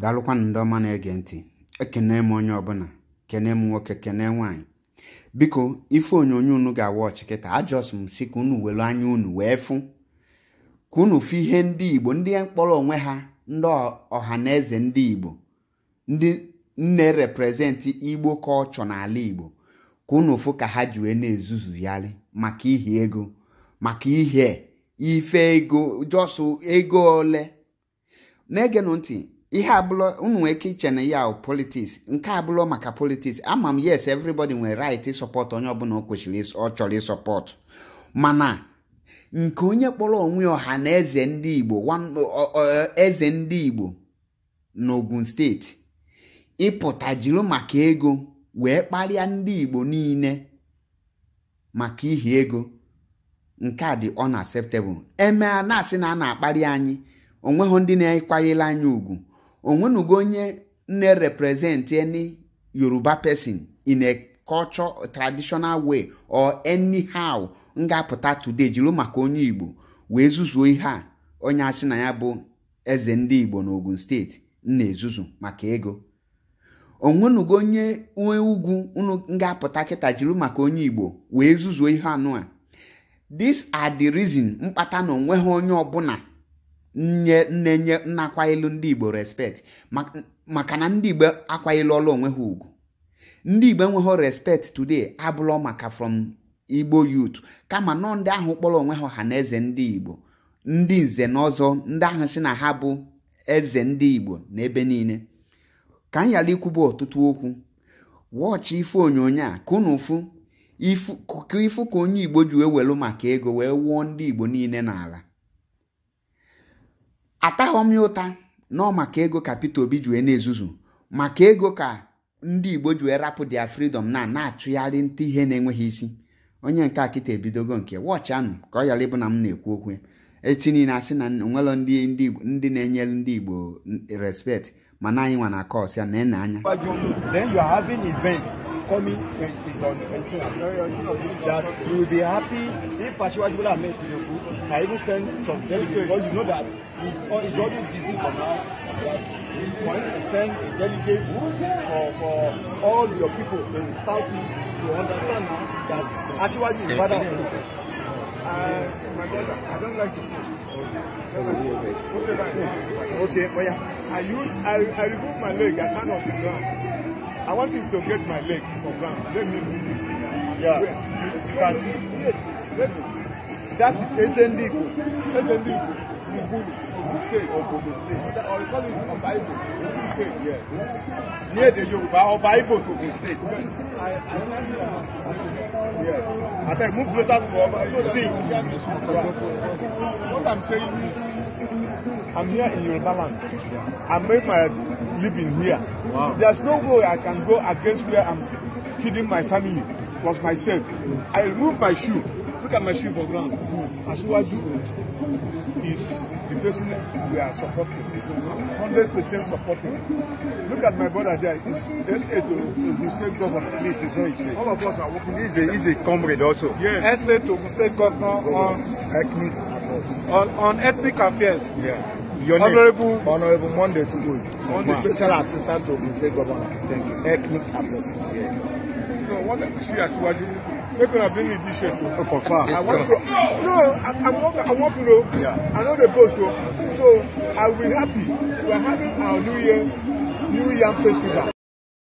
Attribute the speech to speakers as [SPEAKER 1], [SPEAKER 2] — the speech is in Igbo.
[SPEAKER 1] daalụkwanụ ndị ọma na-ege ntị ekene m onye ọbụla kene m nwoke kene nwaanyị biko ife onyonyo unu ga-awa ọchịkịta ajọs m si ka unu welu anya unu wee fụ ka unu fụ ihe ndị igbo ndị mkpọrọ onwe ha ndị ọha na eze ndị igbo ndị nne reprezenti igbo ka ọ chọ n'ala igbo ka unu fụ ka ha ji wee na-ezuzuyarị maka ihe ego maka ihe ife ego jọsụ ego ole na-egenụ ntị ihe abụlọ unu nwee ike iche na ya politiks nke abụlọ maka politiks ama m yes everybody nwere right ịsọpọtụ onye ọbụla o kwesịrị ọ chọrọ ịsọpọtụ mana nke onye kpọrọ onwe ọha na eze ndị Igbo eze ndị Igbo n'Ogun steeti ịpụta jiri maka ego wee kparịa ndị Igbo niile maka ihi ego nke a dị unacceptable emea na-asị na a na-akparị anyị onweghị ndị na-akwanyere anyị ugwu onwenugo onye na representị any yoruba person in a culture traditional way or anyhow nga-apụta today jiri maka onye igbo wee zuzuo ihe a onye achị na ya bụ eze ndị igbo n'ogun steeti na-ezuzu maka ego onwenugo onye nwe ugwu unu nga-apụta kịta jiri maka onye igbo wee zuzuo ihe anụ a this are the reason mkpata na onweghị onye ọbụla nne nne nye nna akwailu ndị igbo respect maka na ndị igbo akwailu ọlụ onwe ha ugwu ndị igbo enweghị respect today abụlọ maka from igbo youth kama nọ ndị ahụ kpọrọ onwe ha ọha na eze ndị igbo ndị nze na ọzọ ndị ahụ si na ha bụ eze ndị igbo n'ebe niile ka m ghara ikwubu ọtụtụ okwu wọchị ife onyonyo a ka unu fụ ifu ka onye igbo ji wee welu maka ego wee wụọ ndị igbo niile n'ala ataghọm ya ụta nọ maka ego ka Peter Obi ji na-ezuzu maka ego ka ndị Igbo ji rapụ dia freedom na na achụgharị nta ihe na-enweghị isi onye nke akịta ebidogo nke wọchị anụ ka ọ yara ịbụ na m na-ekwu okwu eti niile asị na onwelọ ndị na-enyere ndị Igbo respect mana anyị nwa na kọs ya na-ene anya
[SPEAKER 2] coming is on 18. That you will be happy if Asiwaju Bola Ahmed Tinubu. I even send some delegates because you know that he's it's always busy for now. That we want to send a delegate for, for all your people in Southeast to understand now that Asiwaju is father of the uh, my brother, I don't like to post. Okay, okay, okay. okay, but yeah, I use, I, I remove my leg, I stand on the ground. I want him to get my leg for ground. Let me move it. Yeah. Where? You can see. Yes. Let me. That is Ezendigo. Ezendigo. Ubulu. Ogun State. State. Or you call it Bible. Ogun State. Yes. Near the Yoruba, Bible to the State. I, I stand here. Yes. I beg, move closer to our So, see. What I'm saying is, I'm here in Yoruba land. I made my living here. Wow. There's no way I can go against where I'm feeding my family, plus myself. I remove my shoe. Look at my shoe for ground. Asiwaju is the person we are supporting. 100% supporting. Look at my brother there. He's SA to the state governor. Please, it's not his face. All of us are working. He's a, he's a comrade also. Yes. SA to the state governor on Ekmi on, on ethnic affairs. Yeah. Your name, Honorable Monday Chukwuyi, Monday. Special Assistant to the State Governor. Thank you. Ethnic affairs. Yeah. So what if you see Asiwaju? Make una bring me this shape. Oh, confirm. I want to, oh, no, I, I want I want to know. Yeah. I know the post So I will be happy. We are having our New Year New Year festival.